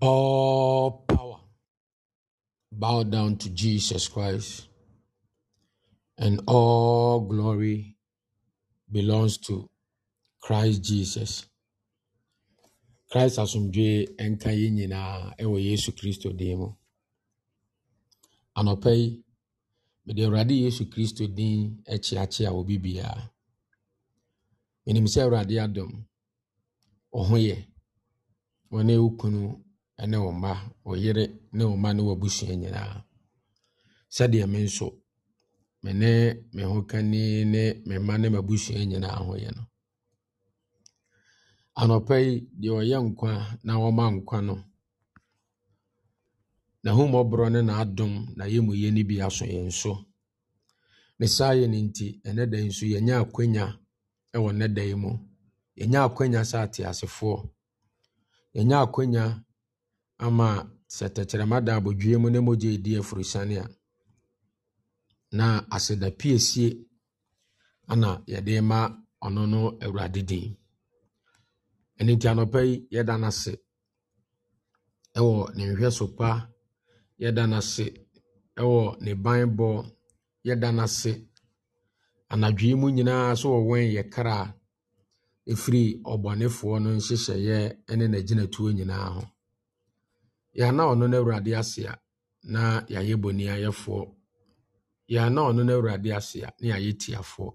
All power bow down to Jesus Christ, and all glory belongs to Christ Jesus. Christ asomdwe nka yɛn nyinaa ɛwɔ Yesu Kristo din mu. Anɔpa yi, mede Awurade Yesu Kristo din akyeakyea wɔ bibiara. Menim sɛ Awurade adom, ɔho yɛ, wɔne wo kunu ɛne wo mma wo yere ne wo mma ne wabusua nyinaa sɛdeɛ me nso me ne me ho kani ne me mma ne mabusua nyinaa ho yɛ no anɔpa yi deɛ ɔyɛ nkwa na wɔma nkwa no n'ahomɔborɔ ne n'adom na yɛ mu yɛ no bi aso yɛn so ne saa yɛ no nti ɛnɛ da yi nso yɛnya akwanya ɛwɔ nnɛ da yi mu yɛnya akwanya sɛ ateasefoɔ yɛnya akwanya ama sɛ tɛkyerɛma da abodwie mu ne mogya edi afurusane a na aseda piesie ana yɛde ma ɔno no awurade din ɛno nti anɔpa yi yɛda no ase ɛwɔ ne nhwɛso pa yɛda no ase ɛwɔ ne banbɔ yɛda no ase anadwo mu nyinaa so wɔ wɔn yɛ kra ɛfiri ɔbɔnefoɔ no nhyehyɛeɛ ne n'agyinatuo nyinaa ho yɛana ɔno no awurade asea na yɛayɛ boniayɛfoɔ yɛana ɔno no awurade asea na yɛayɛ tiafoɔ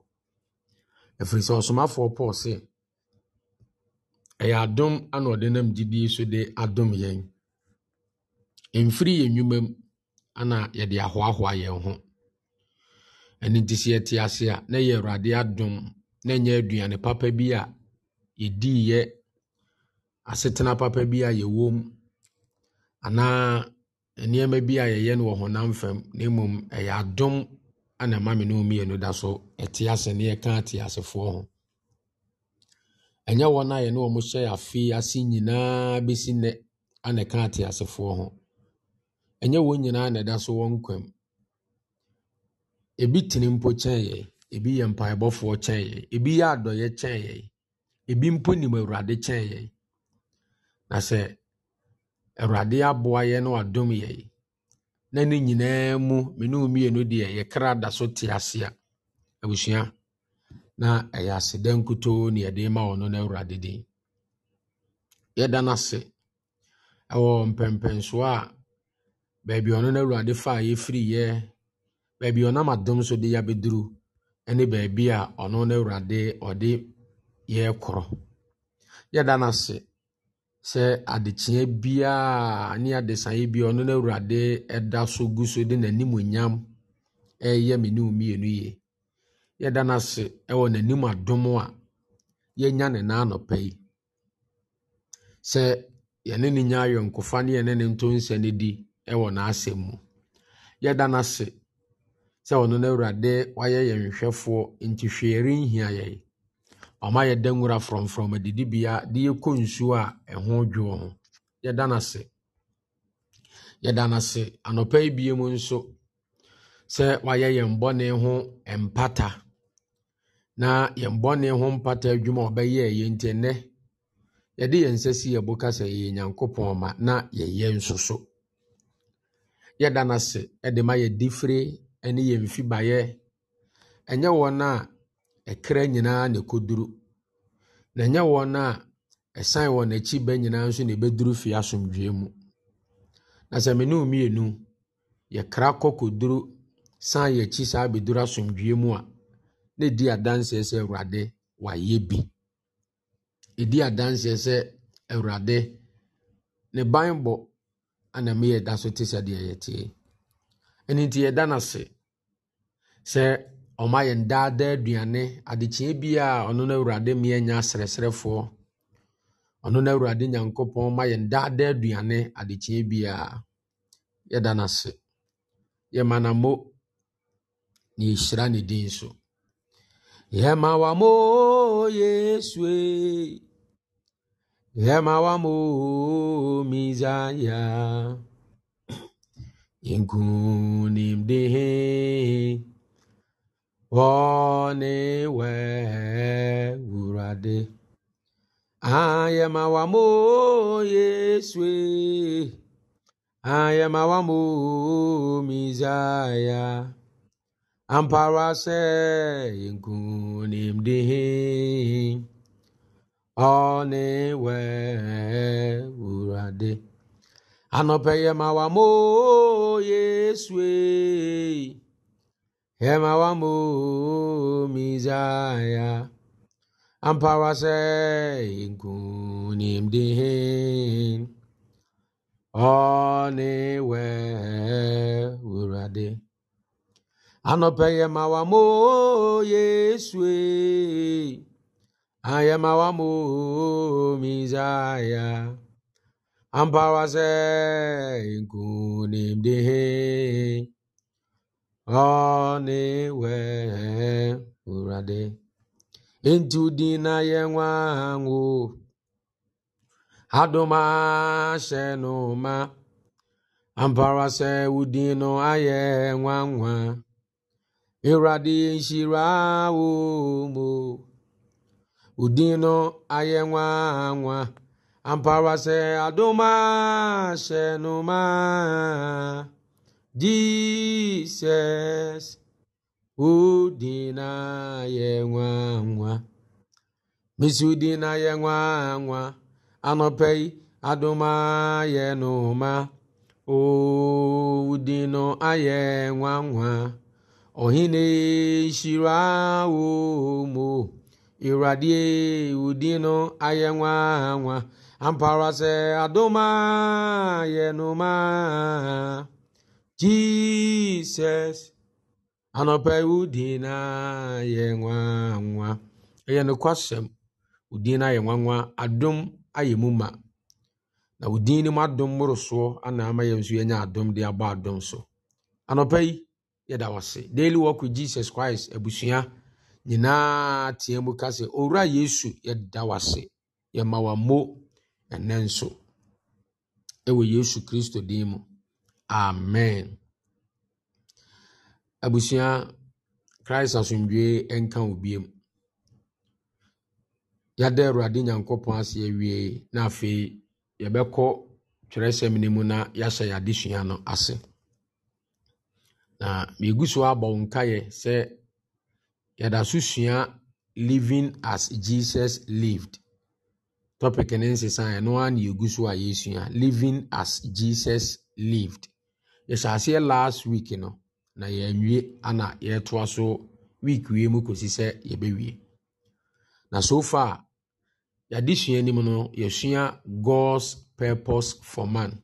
ɛfiri sɛ ɔsomafoɔ paul se ɛyɛ adom ana ɔde nam gyidie so de adom yɛn mfiri yɛn nnwuma m ana yɛde ahoahoa yɛn ho ɛno nti sɛ yɛte ase a na yɛ ewurade adum na ɛnyɛ aduane papa bi a yɛdiiɛ asetena papa bi a yɛwɔ anaa nneɛma bi a yɛyɛ no wɔ honam fam na mmom ɛyɛ adom ana ma me ne mmienu da so ɛte ase ne yɛka ate asefoɔ ho ɛnyɛ wɔn a yɛne wɔn hyɛ afe ase nyinaa bɛsi nnɛ ana ɛka ate asefoɔ ho ɛnyɛ wɔn nyinaa na ɛda so wɔn kwam ebi tene mpo kyɛn yɛn ebi yɛ mpaebɔfoɔ kyɛn yɛn ebi yɛ adɔyɛ kyɛn yɛn ebi mpo nim awurade kyɛn yɛn na sɛ awurade aboa yɛ na wadom yɛ na ne nyinaa mu mene wo mmienu deɛ yɛkra da so te ase abusua na ɛyɛ aseda nkutoo ne yɛde ma wɔ no na awurade di. yɛda no ase ɛwɔ mpɛmpɛnsoɔ a baabi ɔno na awurade fa a yɛfiriyɛ baabi ɔnam adom so de yɛabɛduru ne baabi a ɔno na awurade ɔde yɛrekorɔ yɛda no sɛ adekyeeɛ biara ne adesanye biara ɔno no awurade da so gu so de n'animuonyam ɛreyɛ me ne mmienu yie yɛda no ase ɛwɔ n'anim adom a yɛnya ne naa nɔpa yi sɛ yɛne ne nya ayɔnkofa ne yɛne ne nto nsa di ɛwɔ n'asɛm mu yɛda no sɛ ɔno no awurade wayɛ yɛn hwɛfoɔ nti hwee renhia yɛn ɔma yɛ da nwura frɔmfrɔm adidibea de yɛkɔ nsuo a ɛho dwoɔ ho yɛda no ase yɛda no anɔpa yi biem nso sɛ wayɛ yɛn bɔne ho mpata na yɛn bɔne ho mpata adwuma a ɔbɛyɛ yɛ nti ɛnnɛ yɛde yɛn nsa si yɛbo ka sɛ yɛyɛ nyankopɔn ma na yɛyɛ nso so yɛda no ase ɛde ma yɛdi fire ne yɛn mfibaeɛ ɛnyɛ wɔn a Ɛkra nyinaa na ɛkɔduru. Na ɛnyɛ wɔn a ɛsan wɔn akyi bɛ nyinaa nso na ɛbɛduru fie asomdwoeɛ mu. Na sɛ me ne mmienu, yɛkra kɔ kɔduru san yɛn akyi saa bɛduru asomdwoeɛ mu a, na ɛdi adanseɛ sɛ Awurade, wayɛ bi. Ɛdi adanseɛ sɛ Awurade, ne banbɔ ana me yɛda so te sɛdeɛ yɛte tie. Ɛno nti yɛda no ase sɛ ɔmayɛ ndaadaa aduane adekyee bi a ɔno na awurade mmea nya serɛserɛfoɔ ɔno no awurade nyankopɔn ma yɛ ndaadaa aduane adekyee bi a yɛda no ase yɛma nammo na yɛhyira ne din so yɛma wamo yesue yɛma wamo misaya yɛnkunimde ọ na-ewe wurade ayamawamo yesue ayamawamo mizaya amparase nkunimdihi ọ na-ewe wurade anọpeyamawamo yesue Hema wamu mizaya. Ampawa se nkunim dihin. Ọne we urade. Anọpe yema wamu Yesue. Ayema wamu mizaya. Ampawa se nkunim dihin. ọ na-ewe ụradị ntụdị na ya nwa ahụ adụmashenụma amparase udinụ aya nwa nwa ịradị shiri ahụ mo udinụ aya nwa nwa amparase adụmashenụma Jisọs ụdị na ya nwa nwa mesi ụdị na ya nwa nwa anọpeghị adụma n'ụma ụdị nọ aya nwa nwa ọhịna shiri ahụ ụmụ ịradie ụdị nọ aya nwa nwa amparasị adụma n'ụma jizọs anɔpɛwo e din na yɛ nwa nwa e nokwasɛm wo din no ayɛ nwanwa adom ayɛ mu ma na wo din no mu adom mmorosoɔ anaa ya yɛn nso yɛnya adom de so anɔpɛ yi yɛda wase daily work with jesus christ ebusua nyinaa teɛ mu ka owura yesu yɛda wase yɛma wammo ɛnɛ e nso ɛwɔ yesu kristo din mụ amen abusua christ asomdwee nka wo biem yɛada awurade nyankopɔn ase awie na afei yɛbɛkɔ twerɛsɛm no mu na yɛahyɛ yɛ adesua no ase na miegu so abɔ nkaeɛ sɛ yɛda so sua living as jesus lived topic ne nsesa ɛno ara na yɛgu so a yɛsua living as jesus lived yɛhyɛ last week no na yɛawie ana yɛretoa so week wie mu kɔsi sɛ yɛbɛwie na so far yɛade sua anim no yɛsua god's purpose for man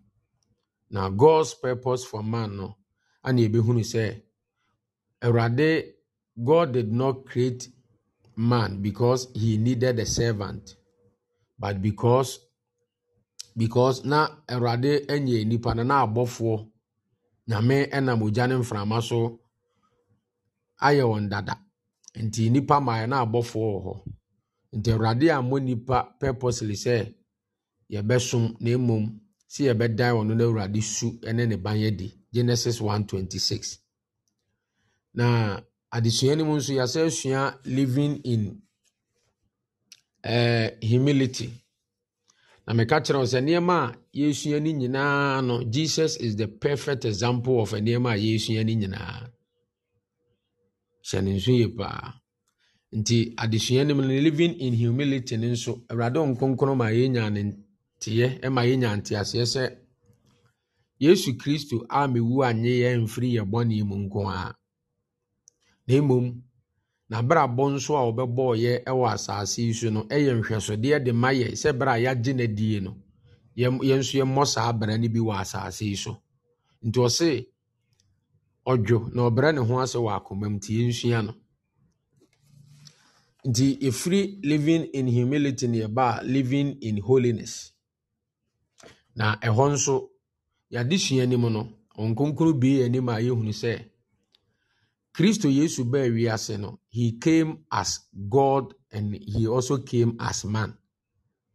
na god's purpose for man no ana yɛbɛhunu sɛ awurade god did not create man because he needed a servant but because because na awurade anyɛ nipa no na abɔfoɔ nyame nam ogya ne mframa so ayɛ wɔn dada nti nnipa maa na abɔfoɔ wɔ hɔ nti awurade ammɔ nnipa purposely sɛ yɛbɛsom na mmom si yɛbɛdan wɔn no awurade su ne ne ban di genesis 126 na adesua no mu nso yɛasɛ living in uh, humility na meka kyerɛ wo sɛ nneɛma a yɛsua no nyinaa no jesus is the perfect example of nneɛma a yɛsua no nyinaa hyɛ ne nso yie paa nti adesua no mu no living in humility no nso awurade nkonkron ma yɛnya ne nteɛ ma yɛnya nteaseɛ sɛ yesu kristo a mewu anye yɛn mfiri yɛ bɔne mu nko a na mmom na n'abrabɔ nso a ɔbɛbɔɔyɛ wɔ asase yi so no yɛ nhwɛsodeɛ de ma yɛ sɛ berɛ a yɛagye n'adie no yɛn nso yɛmmɔ saa bra n'ibi bi asaase asase yi so nti ɔse ɔdwo na ɔbrɛ ne ho ase wɔ akoma mu nti yɛnsua no nti efiri living in humility na yɛba a living in holiness na ɛhɔ nso yadị sua anim no ɔnkonkro bie anim a yɛhunu sɛ Kristo Yesu baa wiase no he came as God and he also came as man.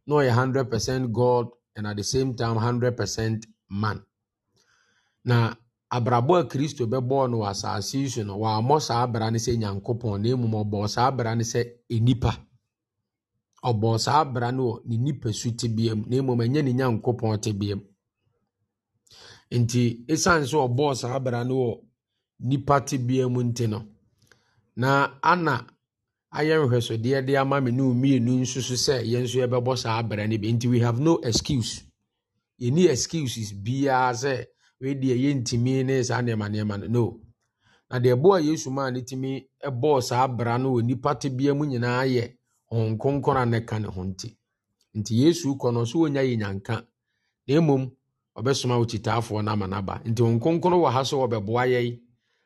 Na ɔyɛ hundred percent God and at the same time hundred percent man. Na abrabɔ a Kristo bɛbɔɔ no wɔ asase yi so no wɔammɔ saa abra no sɛ Nyankopɔn na mmom ɔbɔɔ saa abra no sɛ enipa. Ɔbɔɔ saa abra no wɔ ne nipasu tebea mu na mmom ɛnyɛ ne Nyankopɔn tebea mu. Nti esiane sɛ ɔbɔɔ saa abra no wɔ nnipa tebea mu nti no. Na ana ayɛ nhwɛsodeɛ de ama me ne wo mmienu nso so sɛ yɛn nso yɛbɛbɔ saa abra no bi nti we have no excuse. Yɛnni excuses biara sɛ wei deɛ yɛntumi ne saa nneɛma nneɛma no. No. Na deɛ ɛboa Yesu maa ne tumi bɔɔ saa bra no wɔ nnipa tebea mu nyinaa yɛ Honhom Kronkron a na ne ho nti. Nti Yesu kɔ no, so wɔnnya yɛ nyanka. Na mmom, ɔbɛsoma okyitaafoɔ no ama no aba. Nti Honhom Kronkron wɔ ha sɛ ɔbɛboa yɛn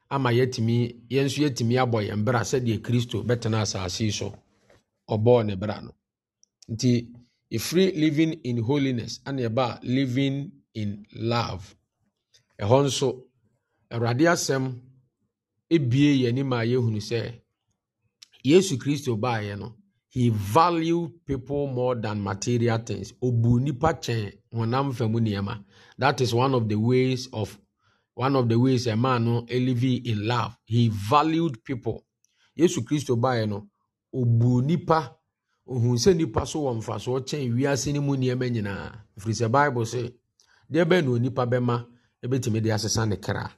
ama yɛtumi yɛn nso yɛtumi abɔ yɛn bra sɛdeɛ kristo bɛtena asase yi so ɔbɔɔ ne bra no nti ɛfiri living in holiness ana ɛba living in love ɛhɔ nso awurade asɛm ebie yɛn ma yɛhunu sɛ yesu kristo baeɛ no he value people more than material things obu nipa kyɛn honam fam nneɛma that is one of the ways of one of the ways a man no live in love he valued people yesu kristo baeɛ no ɔbuu nipa ohun sɛ nipa so wɔ mfasoɔ kyɛn wiase no mu nneɛma nyinaa ɛfiri sɛ bible se deɛ bɛn na onipa bɛma ɛbɛtumi de asesa ne kra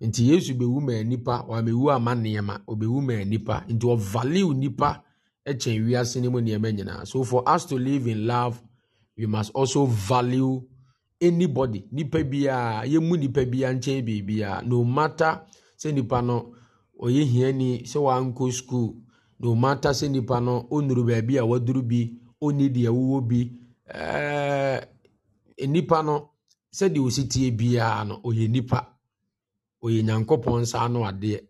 nti yesu bɛwu maa nipa wamɛwu ama nneɛma ɔbɛwu maa nipa nti ɔvaliw nipa kyɛn wiase no mu nneɛma nyinaa so for us to live in love we must also value anybody nipa biara yɛmu nipa biara nkyɛn biribiara no matter sɛ nipa no ɔyɛ hiani sɛ wankɔ sukuu no matter sɛ nipa no ɔnuru baabi a waduru bi ɔnni deɛ wowɔ bi ɛɛɛ eh, nipa no sɛdeɛ ɔsi tie biara no ɔyɛ nipa ɔyɛ nyankopɔn nsa ano adeɛ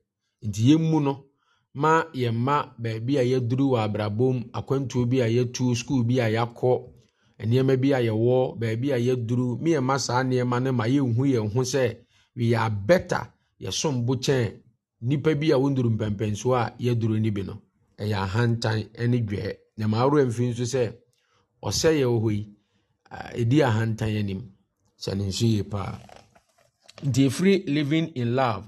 nti yɛmu no ma yɛn ma baabi a yɛduru wɔ abrabom akwantuo bi a yɛtu sukuu bi a yɛakɔ. nneɛma bi a yɛwɔ baabi a yɛduru me ɛma saa nneɛma no ma yɛnhu yɛn ho sɛ we are better yɛsom bo kyɛn nipa bi a wɔnduru mpɛmpɛnsoɔ a yɛduru no bi no ɛyɛ ahantan ne dwɛɛ na ma awerɛ mfi nso sɛ ɔsɛ yɛwɔ hɔ yi ɛdi ahantan anim sɛ ne nso yie paa nti ɛfiri living in love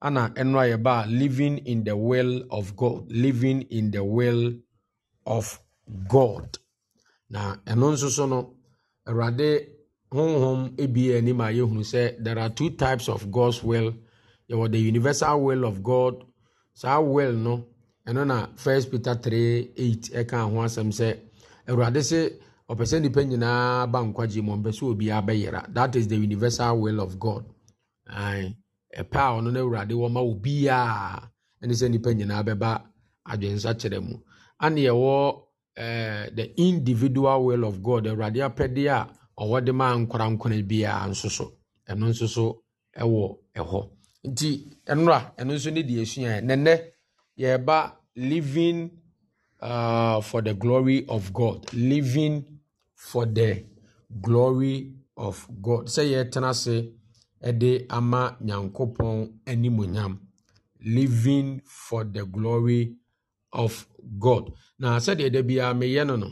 ana ɛno a living in the will of god living in the will of god na ɛno nso so no awurade honhom ebie anim a yɛhunu sɛ there are two types of god's will yɛwɔ the universal will of god saa will no ɛno na first peter 3 8 ɛka ho asɛm sɛ awurade se ɔpɛ sɛ nnipa nyinaa ba nkwagye mu ɔmpɛ sɛ obiara bɛyera that is the universal will of god ɛpɛ a ɔno no awurade wɔma obiara ɛne sɛ nnipa nyinaa bɛba adwensakyerɛ mu ane yɛwɔ Eh, the individual will of god awurade apɛdeɛ a ɔwɔ de maa nkora nkora biara nso so ɛno nso so ɛwɔ ɛhɔ nti nnora ɛno nso ne deɛ esua nɛnɛ yɛreba living uh, for the glory of god living for the glory of god sɛ yɛtena ase ɛde ama nyankopɔn animonyam living for the glory of of god na sɛdeɛ da biara meyɛ no no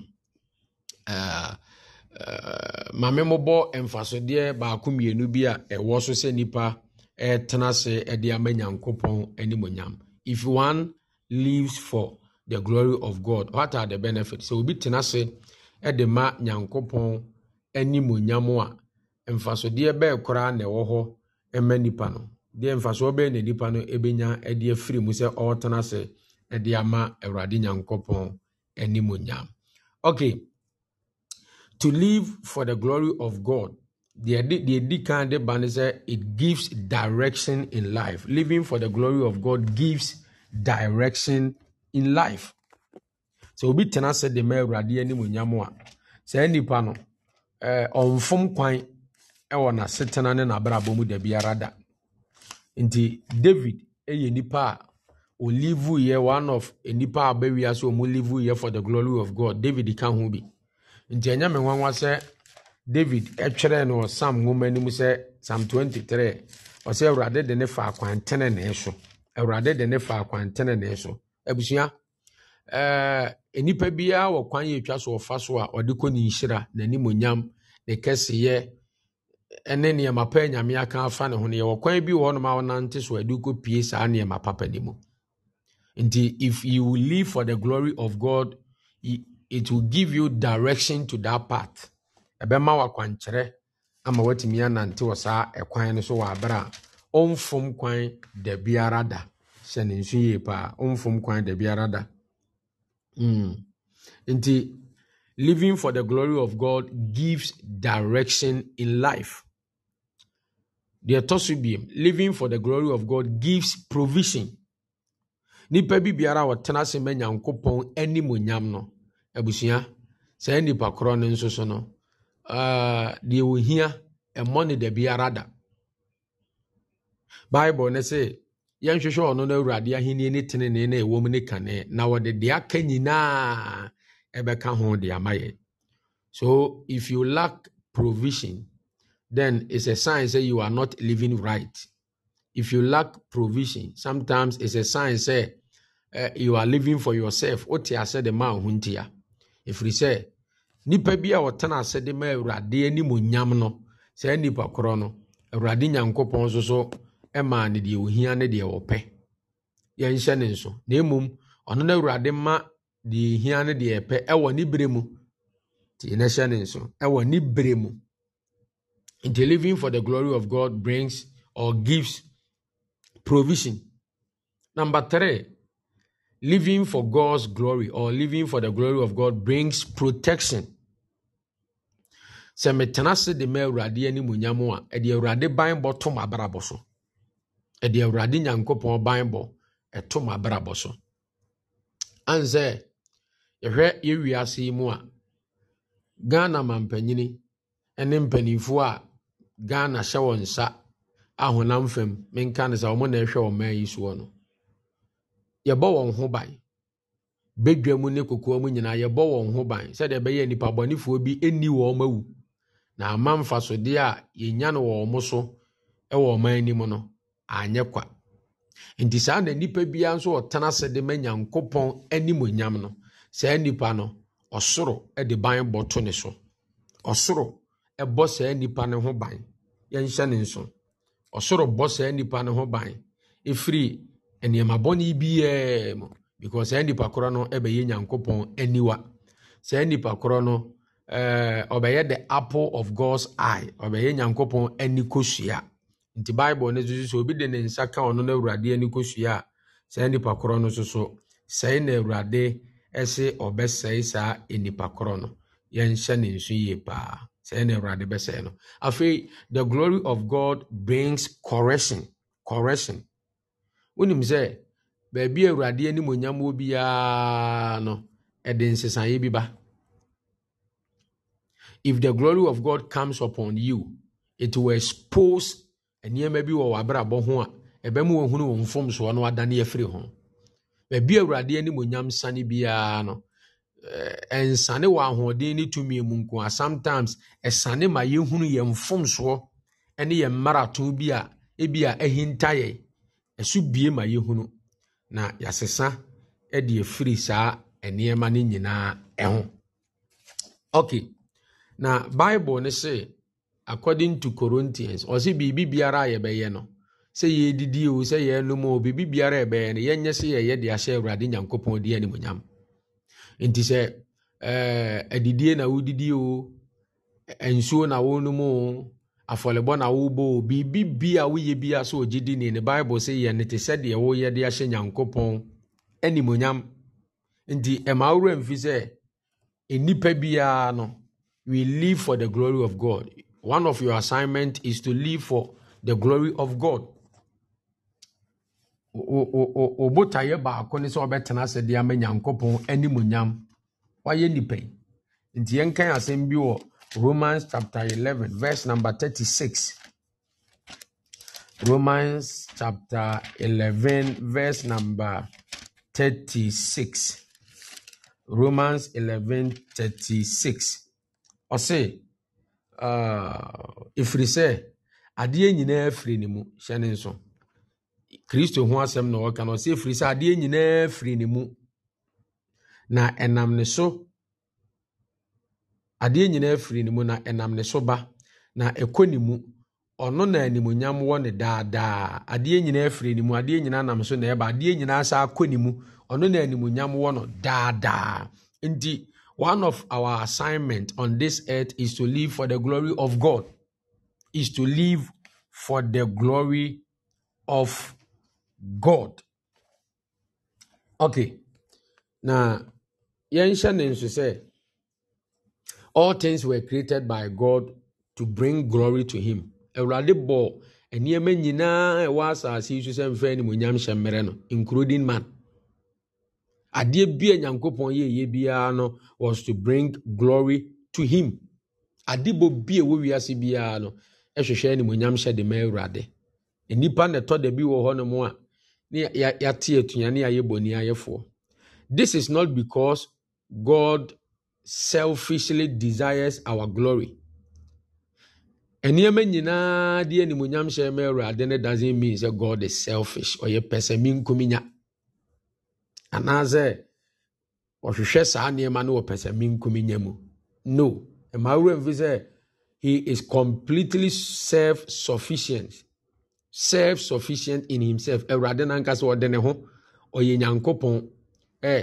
maame me mobɔ mfasodeɛ baako mmienu bi a ɛwɔ so sɛ nnipa ɛtena ase ɛde ama nyankopɔn animonyam if one lives for the glory of god what are the benefits sɛ obi tena ase ɛde ma nyankopɔn animonyam a mfasodeɛ bɛɛ koraa na ɛwɔ hɔ ma nnipa no deɛ mfasoɔ bɛɛ na nnipa no ɛbɛnya ɛde afiri mu sɛ ɔretena ase de ama awurade nyankopɔn animonyam okay to live for the glory of god deɛ di kan de ba ne sɛ it gives direction in life living for the glory of god gives direction in life sɛ obi tena sɛ de ma awurade animonyam a saa nnipa no ɔmfom kwan ɛwɔ n'asetena ne n'abrabɔ mu da biara da nti david yɛ nipa a olivu yɛ one of nipa a ɔbɛ wia sɛ ɔmo livu yɛ for the glory of god david ka ho bi nti ɛnyɛ mi nwanwa sɛ david ɛtwerɛ no sam nwoma anim sɛ sam twenty three ɔsɛ awurade de ne fa akwantene ne so awurade de ne fa akwantene ne so abusua ɛɛ nipa biara wɔ kwan yɛ etwa so ɔfa so a ɔde kɔ ne nhyira n'anim onyam ne kɛseɛ ɛne nneɛma pa nyame aka afa ne ho no yɛwɔ kwan bi wɔ hɔnom a wɔnante so ade kɔ pie saa nneɛma papa ne mu Indeed, if you live for the glory of God, it will give you direction to that path. Ɛbɛma wo akwankyerɛ ama woatumi anante wɔ saa ɛkwan no so wɔ abere a ɔmfom kwan da biara da. Hyɛ ne nso yie kwan da biara Mm. Nti, living for the glory of God gives direction in life. The ɛtɔ living for the glory of God gives provision. nipa bi biara a ɔtena ase mɛ nyankopɔn animonyam no abusua saa nipa korɔ no nso so no ah, deɛ ohia ɛmmɔ ne da biara da bible ne se yɛnhwehwɛ ɔno no awurade ahenni ne tenene na ɛwɔ mu ne kane na wɔde deɛ aka nyinaa ɛbɛka ho de ama yɛ so if you lack provision then it's a sign say you are not living right if you lack provision sometimes it's a sign say uh, you are living for yourself wote ase de ma ho ntia ɛfiri sɛ nipa bi a ɔtena ase de ma awurade anim onyam no saa nipa korɔ no awurade nyankopɔn nso so ɛmaa ne deɛ ohia ne deɛ ɔpɛ yɛnhyɛ ne nso na mmom ɔno no awurade ma deɛ ohia ne deɛ ɛpɛ ɛwɔ ne bere mu nti yɛnhyɛ ne nso ɛwɔ ne bere mu nti living for the glory of God brings or gives provision. Number three, living for God's glory or living for the glory of God brings protection. Sɛ metena se de ma Awurade animuonyam a, ɛde Awurade banbɔ to m'abrabɔ so. Ɛde Awurade Nyankopɔn banbɔ ɛto m'abrabɔ so. Ansɛ, yɛhwɛ yɛ wiase yi mu a, Ghana mampanyini ne mpanimfoɔ a Ghana hyɛ wɔn nsa ahonam fam menka ne sɛ wɔn na ɛhwɛ wɔn mmaa yi soɔ no yɛbɔ wɔn ho ban bedwa mu ne kokoa mu nyinaa yɛbɔ wɔn ho ban sɛdeɛ ɛbɛyɛ nipa bɔnifoɔ bi ɛni wɔn awu na ama mfasodeɛ a yɛnya no wɔ wɔn so ɛwɔ ɔman anim no anyɛ kwa nti saa na nipa biara nso ɔtena ase de ma nyankopɔn animonyam no saa nipa no ɔsoro de ban bɔ to ne so ɔsoro ɛbɔ saa nipa no ho ban yɛnhyɛ ne nso ɔsoro bɔ saa nipa no ho ban ɛfiri nneɛma bɔne biaa mu because saa nipa korɔ no ɛbɛyɛ nyankopɔn aniwa saa nipa korɔ no eh, ɔbɛyɛ the apple of god's eye ɔbɛyɛ nyankopɔn ani kosua nti bible no nso so obi de ne nsa ka ɔno no awurade ani kosua a saa nipa korɔ no soso sɛe na awurade ɛse ɔbɛsɛe saa nipa korɔ no yɛnhyɛ ne nso yie paa sɛɛ na awurade bɛsɛe no afei the glory of god brings correction correction wonim sɛ baabi a awurade anim onyam wɔ no ɛde nsesaeɛ if the glory of god comes upon you it will expose nneɛma bi wɔ w'abrabɔ ho a ɛbɛma wɔhunu wɔn mfomsoɔ no adane afiri ho baabi a awurade anim onyam sane biara ɛnsane eh, eh, wɔ ahoɔden ne tumi mu nko a sometimes ɛsane ma yɛhunu yɛn mfomsoɔ ne yɛn mmarato bi a ebi a ɛhinta yɛn ɛso bie ma yɛhunu na yɛasesa de afiri saa nneɛma no nyinaa ho okay na bible no sɛ according to corinthians ɔsɛ biribi biara a yɛbɛyɛ no sɛ o sɛ o biribi biara a yɛbɛyɛ no yɛnyɛ sɛ yɛyɛ de ahyɛ awurade nyankopɔn animonyam nti sɛ eh, adidie na wodidi o nsuo na wonom o afɔlebɔ na wobɔ o biribi bi a woyɛ bi a so ogye di ne ne bible sɛ yɛ ne te sɛ deɛ woyɛ de ahyɛ nyankopɔn animonyam nti ɛma wowura mfi sɛ nnipa biara no we live for the glory of god one of your assignment is to live for the glory of god obotaeɛ baako ne sɛ ɔbɛtena ase de ama nyankopɔn animonyam wayɛ nnipa yi nti yɛnkan asɛm bi wɔ romans chapter eleven verse number thirty six romans chapter eleven verse number thirty six romans eleven thirty six uh, ah, ɛfiri sɛ adeɛ nyinaa firi ne mu hyɛ kristo ho asɛm na ɔka no ɔsɛ firi sɛ adeɛ nyinaa firi ne mu na ɛnam ne so adeɛ nyinaa firi ne mu na ɛnam ne so ba na ɛkɔ ne mu ɔno na animonyam wɔ ne daadaa adeɛ nyinaa firi ne mu adeɛ nyinaa nam so na ɛba adeɛ nyinaa saa kɔ ne mu ɔno na animonyam wɔ no daadaa nti one of our assignment on this earth is to live for the glory of god is to live for the glory of god okay na yɛnhyɛ nso all things were created by god to bring glory to him awurade bɔ nneɛma nyinaa ɛwɔ asase yi so sɛ no including man adeɛ bi a nyankopɔn no was to bring glory to him adebɔ bi a ɛwɔ wiase biara no ɛhwehwɛ animonyam hyɛ de ma awurade nnipa na bi hɔ no mu a ne yɛate atua bɔne ayɛfoɔ this is not because god selfishly desires our glory nneɛma nyinaa de animonyam hyɛ ma awurade no doesn't mean sɛ god is selfish ɔyɛ pɛ sɛ menkomi nya anaasɛ ɔhwehwɛ saa nneɛma no wɔpɛ sɛ menkomi nya mu no mmaa wura mfi sɛ he is completely self-sufficient self sufficient in himself awurade nankasa ɔde ne ho ɔyɛ nyankopɔn ɛ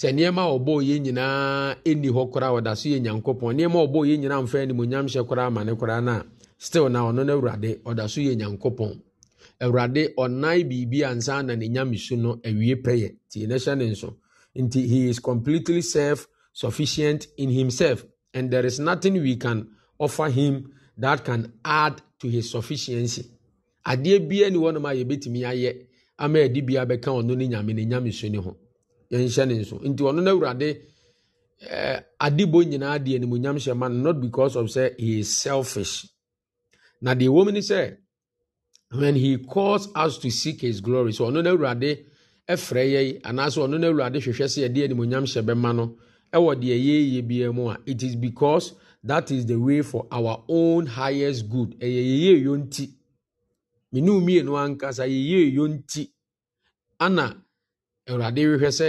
sɛ nneɛma a ɔbɔ yɛ nyinaa ɛni hɔ koraa ɔda so yɛ nyankopɔn nneɛma a ɔbɔ yɛ nyinaa mfa animonyam hyɛ koraa ama ne koraa no still na ɔno no awurade ɔda so yɛ nyankopɔn awurade ɔnan biribi ansa na ne nyame su no awie pɛyɛ nti ne hyɛ ne nso nti he is completely self sufficient in himself and there is nothing we can offer him that can add to his sufficiency adeɛ biara ni wɔnom a yɛbɛtumi ayɛ ama yɛde bi abɛka ɔno ne nyame ne nyame so ne ho yɛnhyɛ ne nso nti ɔno no awurade ɛɛ eh, adibɔ nyinaa deɛ ne mu nyam hyɛ ma not because of say he is selfish na deɛ wɔm ni sɛ when he calls us to seek his glory so ɔno no awurade ɛfrɛ yɛn anaasɛ ɔno no awurade hwehwɛ sɛ yɛde ne mu nyam hyɛ bɛma no ɛwɔ deɛ yɛyɛ biara mu a it is because that is the way for our own highest good ɛyɛ yɛyɛ yɛn ti menu mmienu ankasa yɛyɛ eyo nti ana awurade rehwɛ sɛ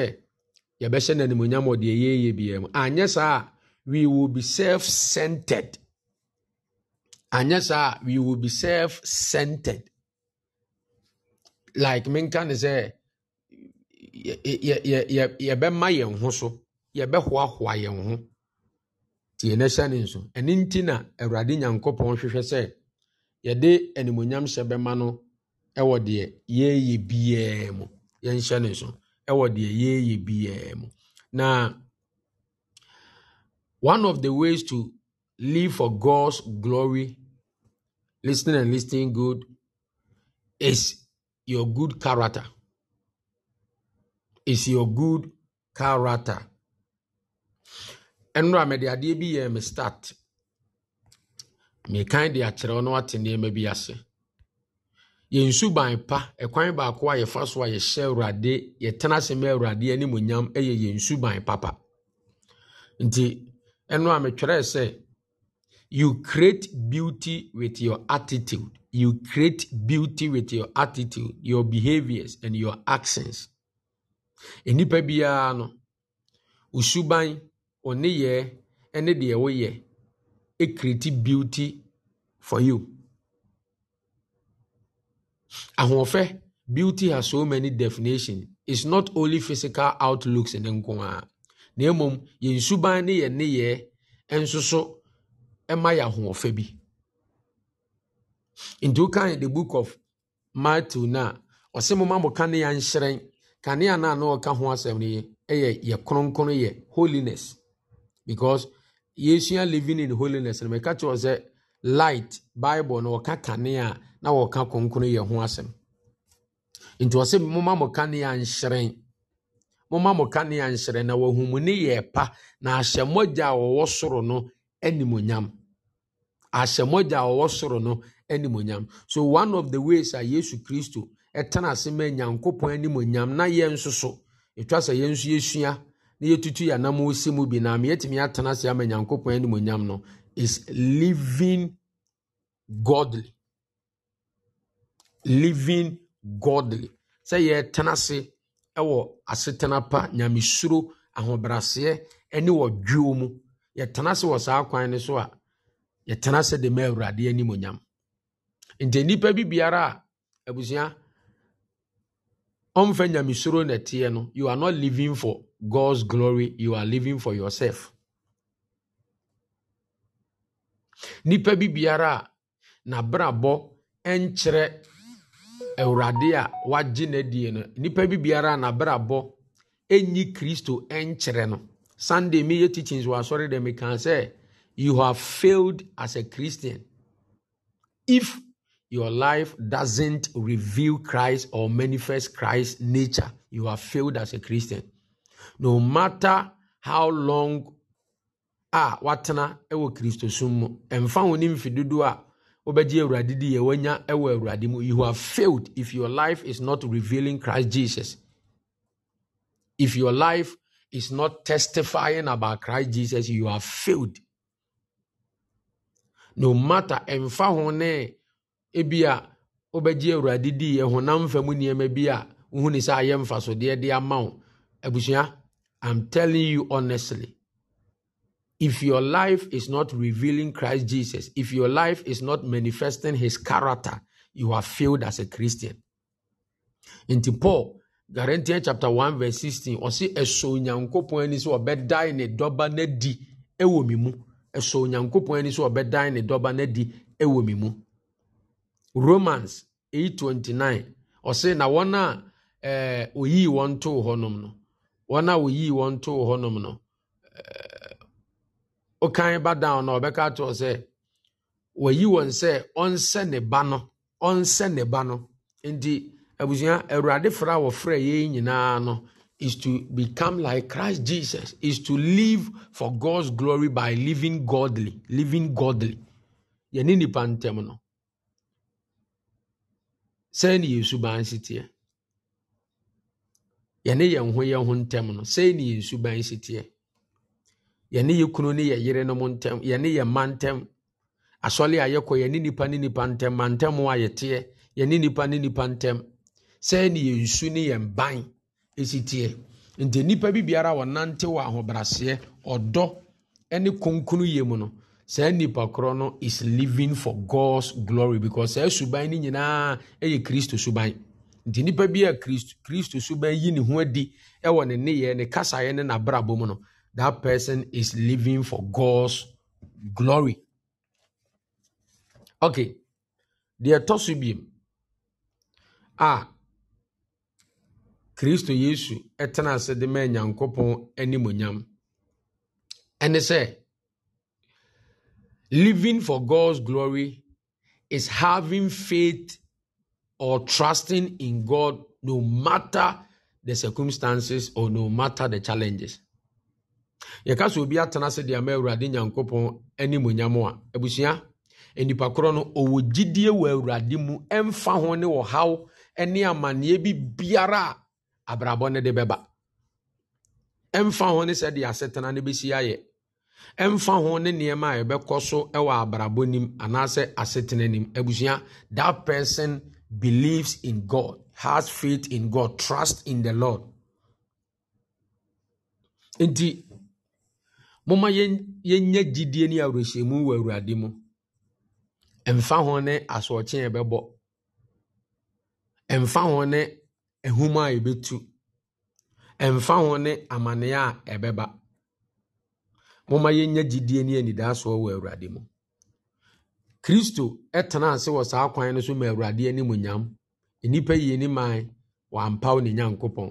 yɛbɛhyɛ no animonyam wɔ deɛ yɛyɛ biara mu anyɛ saa a we will be self-centered anyɛ saa a we will be self-centered like menka ne sɛ yɛbɛma yɛn ho so yɛbɛhoahoa yɛn ho tie ne hyɛ ne nso ɛno nti na awurade nyankopɔn hwehwɛ sɛ yɛde animonyam hyɛ bɛma no ɛwɔ deɛ yɛyɛ biara mu yɛnhyɛ ne so ɛwɔ deɛ yɛyɛ biara mu na one of the ways to live for God's glory listening and listening good is your good character is your good character ɛnura mɛde adeɛ bi yɛ me start mekan de akyerɛ wo na wate nneɛma bi ase yɛn suban pa ɛkwan baako a yɛfa so a yɛhyɛ awurade yɛtena ase ma awurade animonyam ɛyɛ yɛn suban papa nti ɛno a metwerɛɛ sɛ you create beauty with your attitude you create beauty with your attitude your behaviors and your actions nnipa biara no wo suban wo nneyɛɛ ne deɛ woyɛ create beauty for you. Ahoɔfɛ, beauty has so many definitions. It's not only physical outlooks nko ara. Na mmom, yɛn suban ne yɛn nneyɛɛ nso so ma yɛ ahoɔfɛ bi. Nti wokan the book of Matthew na ɔsɛ moma mo kanea nhyerɛn. Kanea no a na ɔka ho asɛm no yi yɛ yɛ kronkron yɛ holiness because yɛsua living in holiness no mɛka kyerɛ sɛ light bible na wɔka kane a na wɔka kronkron yɛ ho asɛm nti ɔsɛ moma mo kanea nhyerɛn moma mo kanea nhyerɛn na wahumu ne yɛ pa na ahyɛmmɔgya a wɔwɔ soro no animonyam ahyɛmmɔgya a wɔwɔ soro no animonyam so one of the ways a yesu kristo ɛtena ase ma nyankopɔn animonyam na yɛn nso so etwa sɛ yɛn nso yɛsua na yɛtutu yɛ anam ɔsi mu bi na meyɛtumi atena ase ama nyankopɔn animonyam no is living godly living godly sɛ yɛtena ase ɛwɔ asetena pa nyamesuro ahobraseɛ ɛne wɔ dwuo mu yɛtena ase wɔ saa kwan no so a yɛtena ase de ma awurade animonyam nti nnipa bi biara a abusua ɔmfa nyamesuro na ɛteɛ no you are not living for God's glory, you are living for yourself. Nipa bi biara na n'abrabɔ nkyerɛ awurade a wagye n'adie no nipa bi biara a n'abrabɔ nyi kristo nkyerɛ no sunday media teachings were sorry asɔre dɛm can say you have failed as a christian if your life doesn't reveal christ or manifest christ's nature you have failed as a christian no matter how long a watena wɔ kristosom mu ɛmfa wo ne mfe dodoɔ a wobɛgye awurade di yɛ wanya wɔ awurade mu you have failed if your life is not revealing christ jesus if your life is not testifying about christ jesus you have failed no matter ɛmfa ho ne ebi a wobɛgye awurade di yɛ honam fa mu nneɛma bi a wohu ne sɛ ayɛ mfasodeɛ de ama wo abusua I'm telling you honestly, if your life is not revealing Christ Jesus, if your life is not manifesting his character, you are failed as a Christian. In Paul, Galatians chapter 1 verse 16, ɔsi ɛsɔ onyankopɔn ani sɛ ɔbɛdan ne dɔba n'adi ɛwɔ mi mu. Ɛsɔ onyankopɔn ani sɛ ɔbɛdan ne dɔba ewomimu. ɛwɔ mi mu. Romans 8:29, ɔsi na wana a ɛɛ eh, oyii wɔn too no wɔn a woyii wɔn to hɔnom no ɔkan eh, ba down na ɔbɛka atoɔ sɛ wɔyi wɔn sɛ ɔnsɛ ne ba no ɔnsɛ ne ba no nti abusua awurade fra wɔfrɛ yɛn nyinaa no is to become like christ jesus is to live for god's glory by living godly living godly yɛne nipa ntɛm no sɛɛ ne yɛ suban si teɛ yɛne yɛn ho yɛn ho ntɛm no sɛi ne yɛn suban si teɛ yɛne yɛ kunu ne yɛ yere no mu ntɛm yɛne yɛ mma ntɛm asɔle a yɛkɔ yɛne nipa ne nipa ntɛm ma ntɛm a yɛteɛ yɛne nipa ne nipa ntɛm sɛi ne yɛn su ne yɛn ban si teɛ nti nipa bi biara wɔnante wɔ ahobraseɛ ɔdɔ ne kunkunu yɛ mu no saa nipa korɔ no is living for god's glory because saa suban no nyinaa yɛ kristo suban nti bi a kristo kristo so bɛyi ne ho adi ne ne kasaeɛ ne n'abrabɔ mu no that person is living for god's glory okay deɛ ɛtɔ so biem a kristo yesu tena ase de ma nyankopɔn animonyam ɛne sɛ living for god's glory is having faith or trusting in God no matter the circumstances or no matter the challenges. yɛka sɛ obi atena sɛ deɛ ama awurade nyankopɔn animonyam a abusua nnipa korɔ no ɔwɔ gyidie wɔ awurade mu ɛmfa ho ne ɔhaw ne amanneɛ bi biara a abrabɔ no de bɛba ɛmfa ho ne sɛdeɛ asetena no bɛsi ayɛ ɛmfa ho ne nneɛma a ɛbɛkɔ so wɔ abrabɔ nim anaasɛ asetena nim abusua that person believes in God, has faith in God, trust in the Lord. Nti, moma yɛnyɛ gyidie ne awerɛhyɛmu wɔ Awurade mu. Mfa ho ne asoɔkye ɛbɛbɔ. Mfa ho ne ehum a ɛbɛtu. Mfa ho ne amanneɛ a ɛbɛba. Moma yɛnyɛ gyidie ne anidasoɔ wɔ Awurade mu. kristo tena ase wɔ saa kwan no so ma awurade anim nyam nnipa yie ne man wɔampaw ne nyankopɔn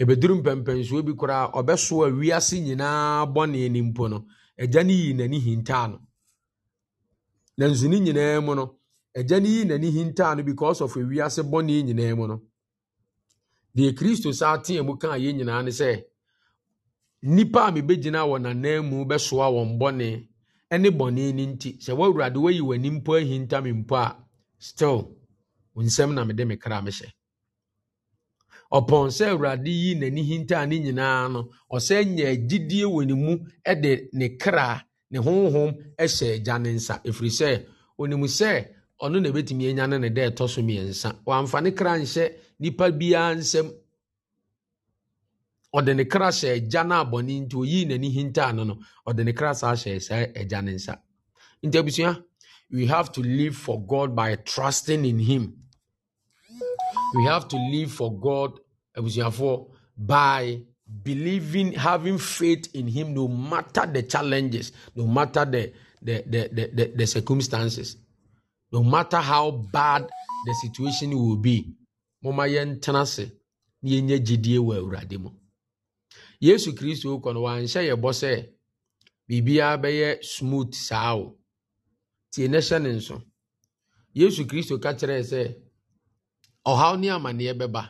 ɛbɛduru mpɛmpɛnsoɔ bi koraa ɔbɛso a wiase nyinaa bɔne ni mpo no agya no yii n'ani hintaa no nanso ne nyinaa mu no agya no yii n'ani hintaa no because of wiase bɔne nyinaa mu no deɛ kristo saa tea mu kaa yɛn nyinaa ne sɛ nnipa a mebɛgyina wɔ n'anan mu bɛsoa wɔn bɔne ne bɔne no nti sɛ woawurade wayi w'ani mpo ahinta me mpo a still wo nsɛm na mede me kra mehyɛ ɔpɔn sɛ awurade yi n'ani hintaa ne nyinaa no ɔsɛ nya agyidie wɔ ne mu de ne kra ne honhom hyɛ agya ne nsa ɛfiri sɛ ɔnim sɛ ɔno na ɛbɛtumi anya ne ne dɛ ɛtɔ so mmiɛnsa wamfa ne kra nhyɛ nnipa biara nsɛm ɔde ne kra hyɛ no abɔne nti n'ani no ɔde ne kra saa hyɛ saa agya ne nsa nti abusua we have to live for god by trusting in him we have to live for god abusuafoɔ by believing having faith in him no matter the challenges no matter the the the the, the, the circumstances no matter how bad the situation will be mo ma yɛn tena ase na yɛnyɛ gyidie wɔ awurade mu yesu kristo kɔ no wanhyɛ yɛ bɔ sɛ biribiara bɛyɛ smooth saa o tie ne hyɛ ne nso yesu kristo ka kyerɛɛ sɛ ɔhaw ne amanneɛ bɛba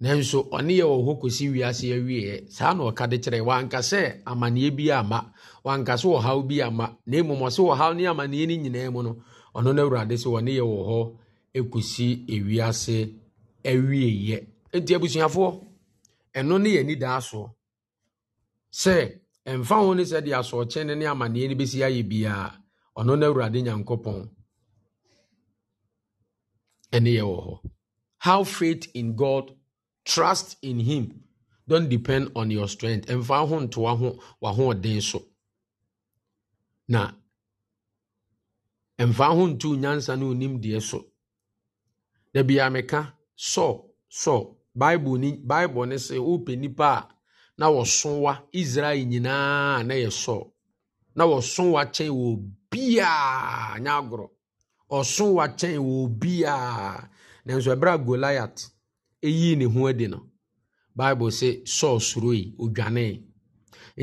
nanso ɔne yɛ wɔ hɔ kɔsi wiase awieɛ saa na ɔka de kyerɛ wanka sɛ amanneɛ bi ama wanka sɛ ɔhaw bi ama na mmom ɔsɛ ɔhaw ne amanneɛ no nyinaa mu no ɔno no awurade sɛ ɔne yɛ wɔ hɔ kɔsi ewiase awieɛ enti abusuafoɔ ɛno ne yɛ anidaa soɔ sɛ ɛmfa ho ne sɛ deɛ ne amanneɛ no bɛsi ayɛ biara ɔno no awurade nyankopɔn ɛne yɛ wɔ hɔ how faith in god trust in him don't depend on your strength ɛmfa ho nto waho wahoɔden so na ɛmfa ho nto nyansa ne onim deɛ so da biaa meka sɔ sɔ bible ni bible ne se wopɛ nipa a na wɔsowa israel nyinaa na yɛ sɔɔ na wɔsowa kyɛn wɔ biaa nyɛ agorɔ ɔsowa kyɛn wɔ biaa nanso ɛberɛ a goliath eyi ne ho adi no bible sɛ sɔɔ suroi odwanee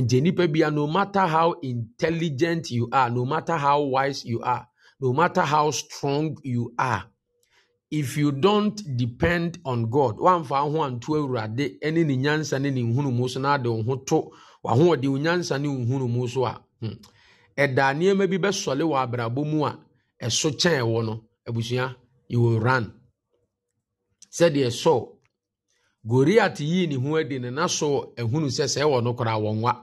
nti nipa bia no matter how intelligent you are no matter how wise you are no matter how strong you are if you don't depend on god wamfa ho anto awurade ne ne nyansa ne ne nhunumu so na ade wo ho to wahoɔde wo nyansa ne nhunumu so a hmm. ɛda nneɛma bi bɛsɔle wɔ abrabɔ mu a ɛso kyɛn ɛwɔ no abusua you will run sɛdeɛ sɔ goriat yii ne ho adi ne na so ehunu sɛ sɛ ɛwɔ no koraa wɔnwa